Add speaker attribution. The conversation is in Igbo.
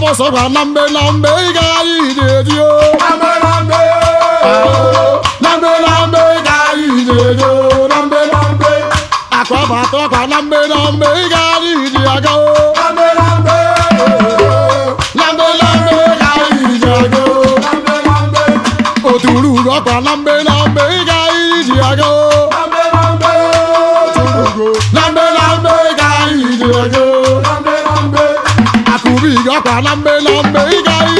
Speaker 1: abọsọkwa na mgbe na mgbe ị ga anyị na-eji o na mgbe na mgbe na mgbe na mgbe ị ga anyị na-eji o na mgbe na mgbe akwa bụ atọkwa na mgbe ga anyị ji aga o na mgbe na mgbe na ga anyị ji aga o oturu ụlọ ọkwa na mgbe na mgbe ga Ubi ga kwa lambe lambe
Speaker 2: igai